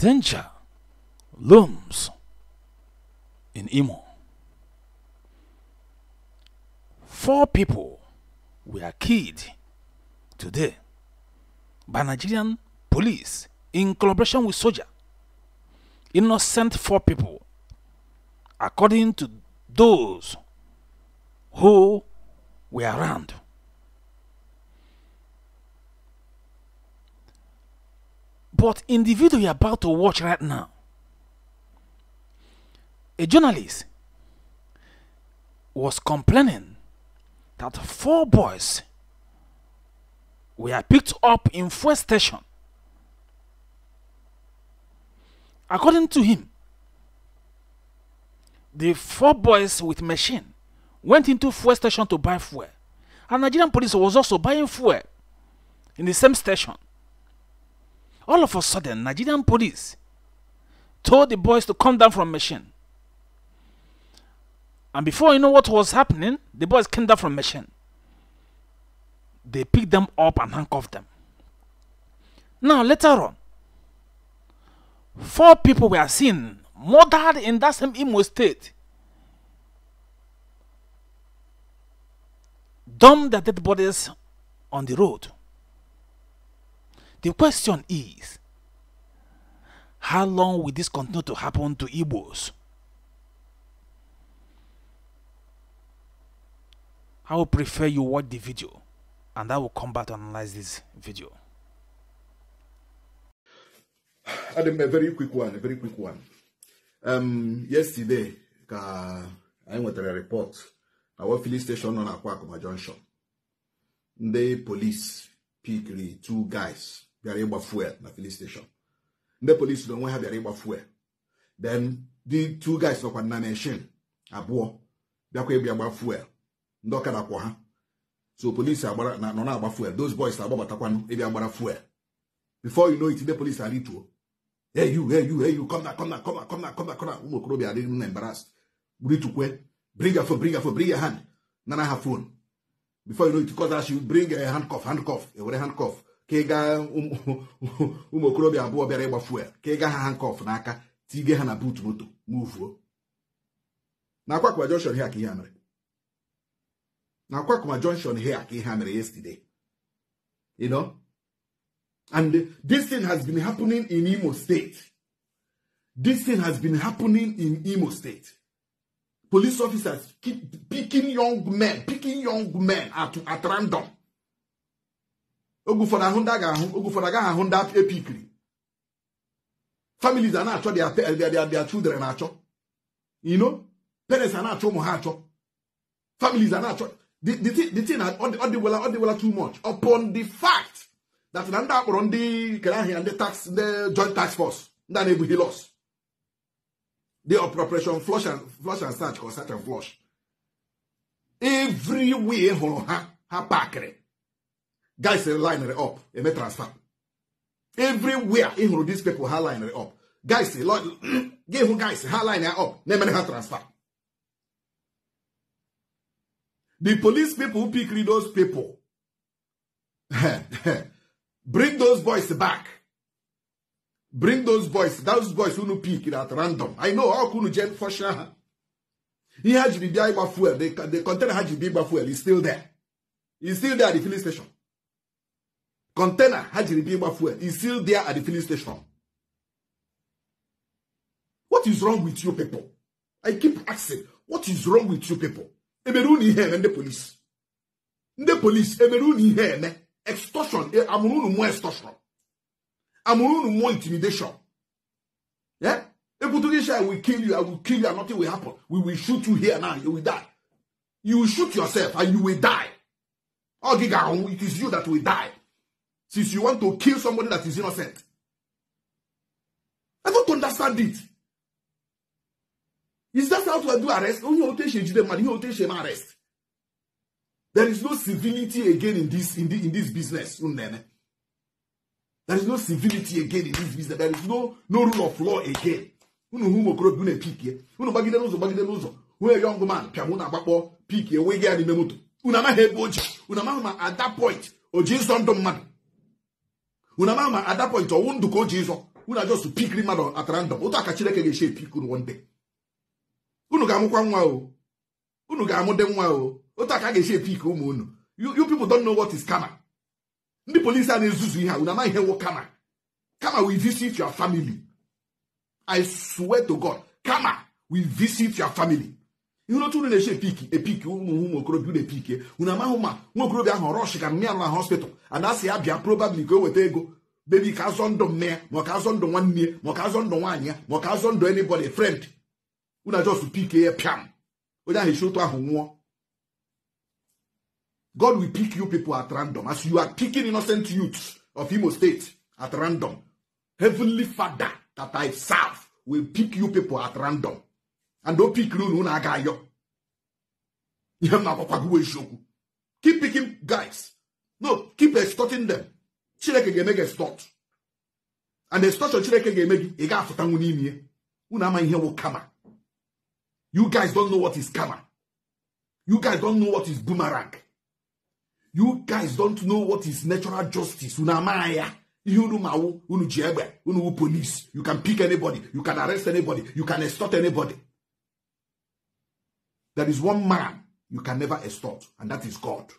danger looms in Imo. Four people were killed today by Nigerian police in collaboration with soldier. Innocent four people, according to those who were around. But in the video you're about to watch right now, a journalist was complaining that four boys were picked up in fuel station. According to him, the four boys with machine went into fuel station to buy fuel. And Nigerian police was also buying fuel in the same station. All of a sudden, Nigerian police told the boys to come down from machine. And before you know what was happening, the boys came down from machine. They picked them up and handcuffed them. Now, later on, four people were seen murdered in that same Imo state. Dumped their dead bodies on the road. The question is, how long will this continue to happen to Igbos? I would prefer you watch the video and I will come back to analyze this video. Adam, a very quick one, a very quick one. Um, yesterday, I went to a report our filling station on Akwakuma Junction. The police picked two guys bịara ịgba fuel na filin steshọn ndị polisi na onwe ha bịara ịgba fuel then the two guys nọkwa na meshin abụọ bịakwa ịbịa gba fuel ndị ọkada kwọ ha so polisi agbara nọ na-agba fuel those boys agbabatakwanụ ịbịa gbara fuel before you know it ndị polisi arituo hey you hey you hey you come na come na come na come na come na come na ụmụ okorobịa adịghị na embarrassed ritukwe bring your phone bring your phone bring your hand nana ha phone before you know it cause as you bring a handcuff handcuff ewere handcuff ka ịga ụmụ okorobịa abụọ bịara ịgba fuel ka ịga ha hankọf n'aka tige ha na moto muvuo na akwakụma jọnshọn hia ka ihe mere na akwakụma jọnshọn hia ka ihe mere yesterday you know and this thing has been happening in Imo State this thing has been happening in Imo State police officers keep picking young men picking young men at, at random oge ụfọdụ ahụ ndị a ga-ahụ oge ụfọdụ agaghị ahụ ndị epikiri families a na-achọ their children na-achọ ino parents a na-achọ ụmụ ha achọ families a na-achọ the thing ọ dịwela ọ dịwela too much upon the fact that na ndị akpọrọ ndị kere ahịa ndị tax ndị joint tax force ndị a na-ebughị los the appropriation flush and flush and search or search and flush everywhere hụrụ ha ha pakịrị guys linere up eme transfer everywhere ị hụrụ these people ha linere up guys gị hụ guys ha line ya up na-emere ha transfer the police people who pick those people bring those boys back bring those boys those boys unu pick at random i know ọkụ unu jen fọshia ha ihe ha jiri bịa ịgba fuel the container ha jiri bịa ịgba fuel is still there is still there at the filling station container ha jiri bịa ịgba fuel is still there at the filling station what is wrong with you people i keep asking what is wrong with you people emere unu ihe eme ndị polisi ndị polisi emere unu ihe eme extortion e, amụrụ unu mụọ extortion amụrụ unu mụọ intimidation yeah? Ebutugisha, I will kill you, I will kill you, and nothing will happen. We will shoot you here now, you will die. You will shoot yourself and you will die. Ogiga, it is you that will die since you want to kill somebody that is innocent? I don't understand it. Is that how to do arrest? Only rotation today, man. rotation arrest. There is no civility again in this in this, in this business. There is no civility again in this business. There is no no rule of law again. Unu hu mokoro bi na pick ye. Unu bagide n'ụzọ bagide n'ụzọ. Who a young man pịa mụ na agbakpọ pick ye wee gị ya n'ime moto. Unu at that point o ji nsọ man. unu ama at that point ọnwụ ndụ ka o ji ịzọ unu just pikiri mmadụ at random otu aka Chineke ga-esi epik unu one day unu ga-amụkwa nwa o unu ga-amụ nwa o otu aka ga-esi epik ụmụ unu you people don't know what is karma ndị polisi a na-ezuzu ihe a unu amaghị ihe wo karma karma will visit your family I swear to God karma will visit your family ihe otu unu na-eche epiki epiki ụmụ ụmụ okorobịa unu epike unu amahụ ma nwa okorobịa ahụ rọsh ka mmịa na hospital ana ya bịa probably ka o weta ego bebi ka azọ ndụ nne ya ma ọ ka azọ ndụ nwanne ya ma ọ ka azọ ndụ nwaanyị ya ma ọ ka azọ ndụ anybody friend unu ajọs pike ya pịam onye ahụ echi otu ahụ nwụọ God will pick you people at random as you are picking innocent youths of Imo State at random heavenly father that I serve will pick you people at random and opikiri unu unu aga ayọ ihe m na-agwakwa gị bụ eziokwu keep picking guys no keep extorting them chineke ga-eme gị extort and extortion chineke ga-eme gị ị ga-afụtanwu n'ime ya unu ama ihe wụ kama you guys don't know what is kama you guys don't know what is boomerang you guys don't know what is natural justice unu ama ya ihe unu ma wụ unu ji egbe unu wụ police you can pick anybody you can arrest anybody you can extort anybody There is one man you can never extort, and that is God.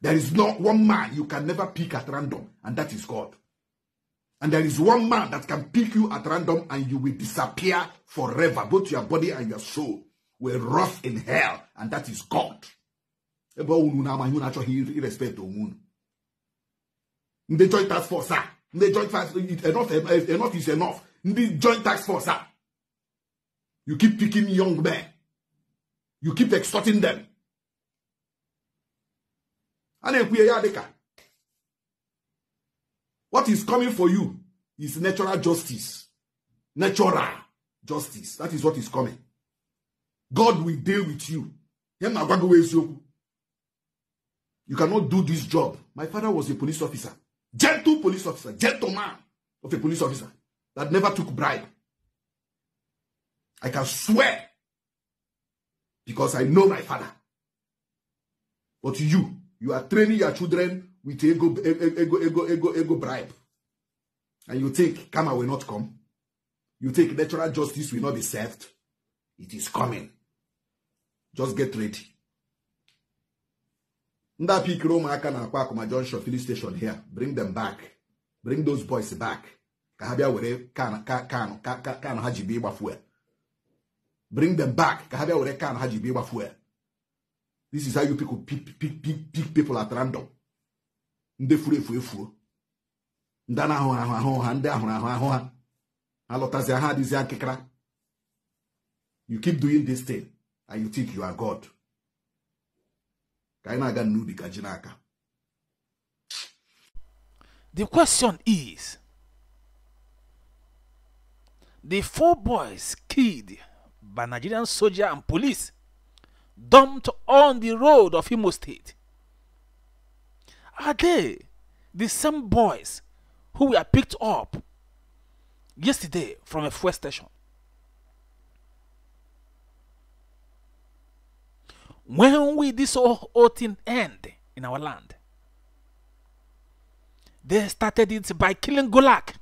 There is not one man you can never pick at random, and that is God. And there is one man that can pick you at random and you will disappear forever. Both your body and your soul will rot in hell, and that is God. The joint tax force, sir. The joint tax enough, enough is enough. The joint tax force, sir. You keep picking young men you keep extorting them a na-ekwunye ya dịka what is coming for you is natural justice natural justice that is what is coming god will deal with you ya na-agwa gị eziokwu you cannot do this job my father was a police officer gentle police officer gentleman of a police officer that never took bribe i can swear because I know my father. But you, you are training your children with ego, ego, ego, ego, ego bribe. And you think karma will not come. You think natural justice will not be served. It is coming. Just get ready. ndị apikiri ụmụaka na-akwa akụma junction filling station here bring them back bring those boys back ka ha bịa were kan ha ji bịa ịgba fuel bring them back ka ha bịa were kan ha ji be ịgba fuel this is how you pick people at random ndị furu efu efuo ndị a na-ahụ ahụ ahụ ha ndị ahụrụ ahụ ahụ ha alọtazi ha adịzi akịkara you keep doing this thing and you think you are God ka anyị na-aga n'ubi ka ji n'aka the question is the four boys killed by Nigerian soldier and police dumped on the road of Imo State? Are they the same boys who were picked up yesterday from a fuel station? When will this whole thing end in our land? They started it by killing Golak,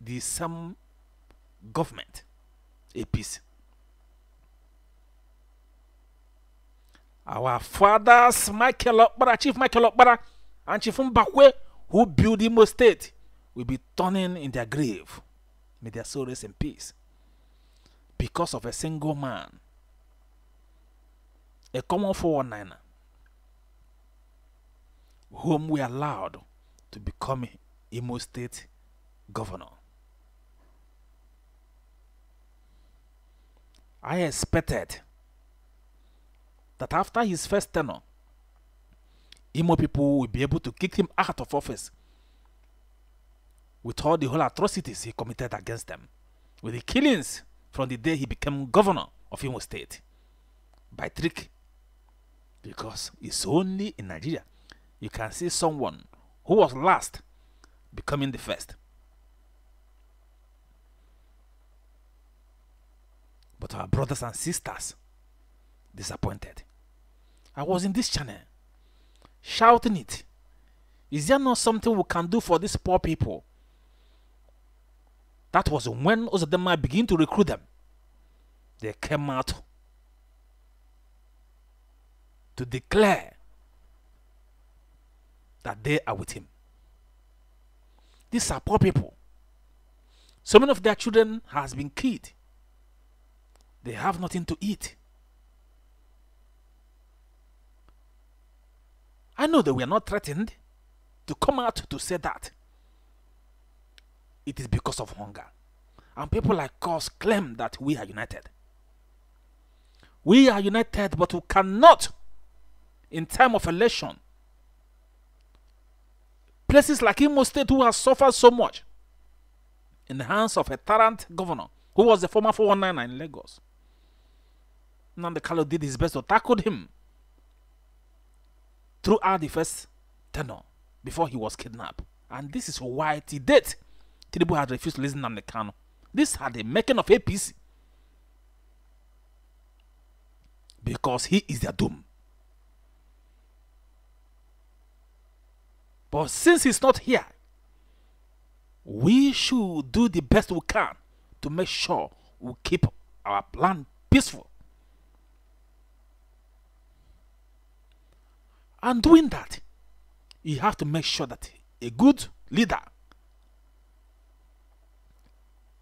the same government, a Our fathers, Michael Okbara, Chief Michael Okbara, and Chief Mbakwe, who built Imo State, will be turning in their grave. May their soul rest in peace. Because of a single man, a common 419, er, whom we allowed to become Imo State governor. I expected that after his first tenure, Imo people will be able to kick him out of office with all the whole atrocities he committed against them, with the killings from the day he became governor of Imo State by trick. Because it's only in Nigeria you can see someone who was last becoming the first. But our brothers and sisters disappointed. I was in this channel shouting it. Is there not something we can do for these poor people? That was when Ozadema began to recruit them. They came out to declare that they are with him. These are poor people. So many of their children has been killed. They have nothing to eat. I know they were not threatened to come out to say that. It is because of hunger. And people like us claim that we are united. We are united, but we cannot, in time of election, places like Imo State, who has suffered so much in the hands of a tyrant governor, who was the former 419 in Lagos. Nandekalo did his best to tackle him throughout the first tenor before he was kidnapped. And this is why he date, Tidibu had refused to listen to Namdekano. This had the making of APC. Because he is their doom. But since he's not here, we should do the best we can to make sure we keep our plan peaceful And doing that, you have to make sure that a good leader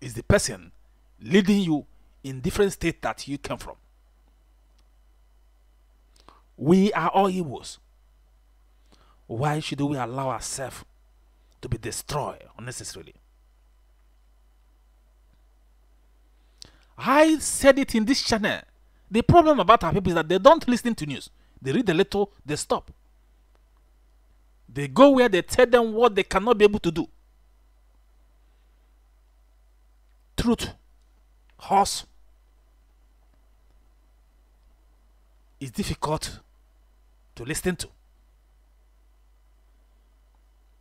is the person leading you in different states that you came from. We are all Igbos. Why should we allow ourselves to be destroyed unnecessarily? I said it in this channel. The problem about our people is that they don't listen to news. They read a little, they stop. They go where they tell them what they cannot be able to do. Truth, horse, is difficult to listen to.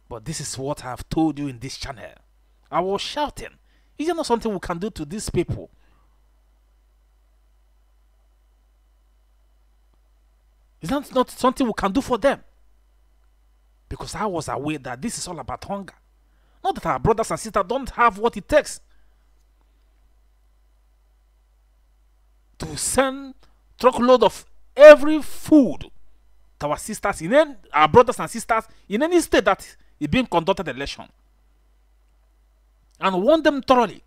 But this is what I have told you in this channel. I was shouting. Is there not something we can do to these people Is that not something we can do for them? Because I was aware that this is all about hunger. Not that our brothers and sisters don't have what it takes to send truckload of every food to our sisters in any, our brothers and sisters in any state that is being conducted election and want them thoroughly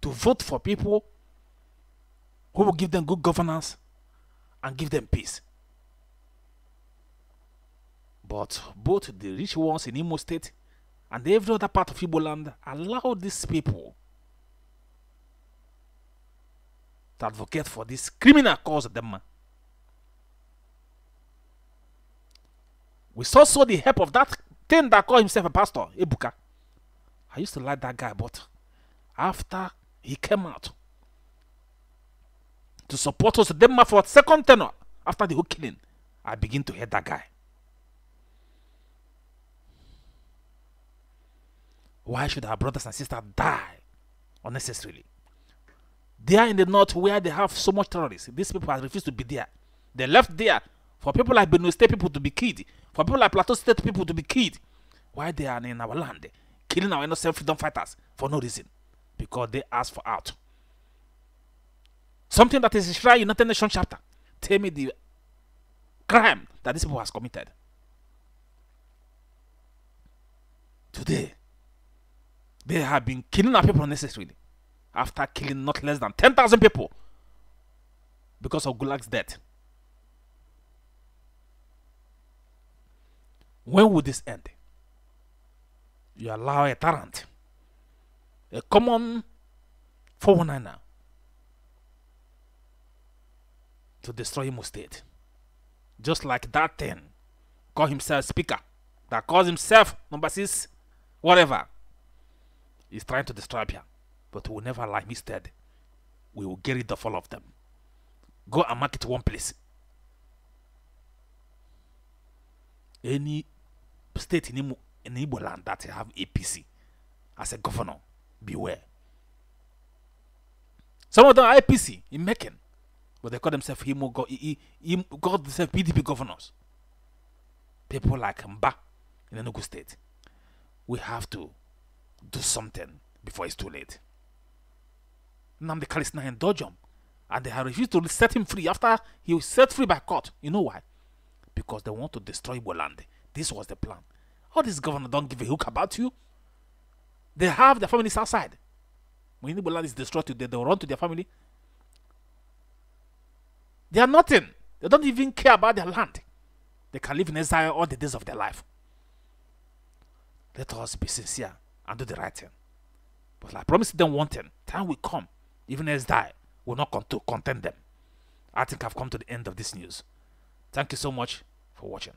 to vote for people who will give them good governance and give them peace. But both the rich ones in Imo State and every other part of Igbo land allowed these people to advocate for this criminal cause them. We saw so the help of that thing that called himself a pastor, Ebuka. I used to like that guy, but after he came out to support us, them for second tenor after the whole killing, I begin to hate that guy. Why should our brothers and sisters die unnecessarily? They are in the north where they have so much terrorists. These people have refused to be there. They left there for people like Benue State people to be killed, for people like Plateau State people to be killed. Why they are in our land, killing our innocent freedom fighters for no reason? Because they asked for out. Something that is Israel United Nations chapter. Tell me the crime that this people has committed. Today, they have been killing our people unnecessarily after killing not less than 10,000 people because of Gulag's death. When will this end? You allow a tyrant, a common 419er, to destroy Imo State. Just like that thing, call himself speaker, that calls himself number six, whatever. He's trying to destroy you, But we'll never lie. him. Instead, we will get rid of all of them. Go and mark it one place. Any state in, Imo in Igbo land that have APC as a governor, beware. Some of them are APC in Mekin, but they call themselves Imo, God, call themselves PDP governors. People like Mba in Enugu state. We have to do something before it's too late. Namdi Kalisna and Dojum, and they have refused to set him free after he was set free by court. You know why? Because they want to destroy Boland. This was the plan. All these governors don't give a hook about you. They have their families outside. When Boland is destroyed they they'll run to their family. They are nothing. They don't even care about their land. They can live in exile all the days of their life. Let us be sincere and do the right thing. But I promise them one thing time will come, even as die will not cont- content them. I think I've come to the end of this news. Thank you so much for watching.